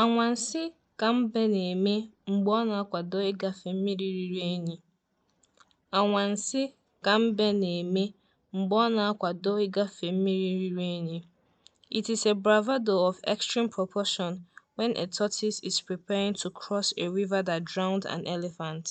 Anwansi ka mbe na-eme mgbe ọ na-akwado ịgafe mmiri riri enyi Anwansi ka mbe na-eme mgbe ọ na-akwado ịgafe mmiri riri unyi. It is a bravado of extreme proportion when a tortoise is preparing to cross a river that drowned an elephant.